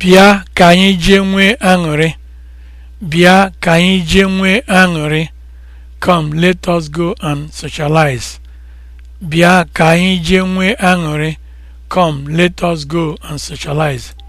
Bịa ka anyị jee nwee aṅụrị. Bịa ka anyị jee nwee aṅụrị. Come, let us go and socialize. Bịa ka anyị jee nwee aṅụrị. Come, let us go and socialize.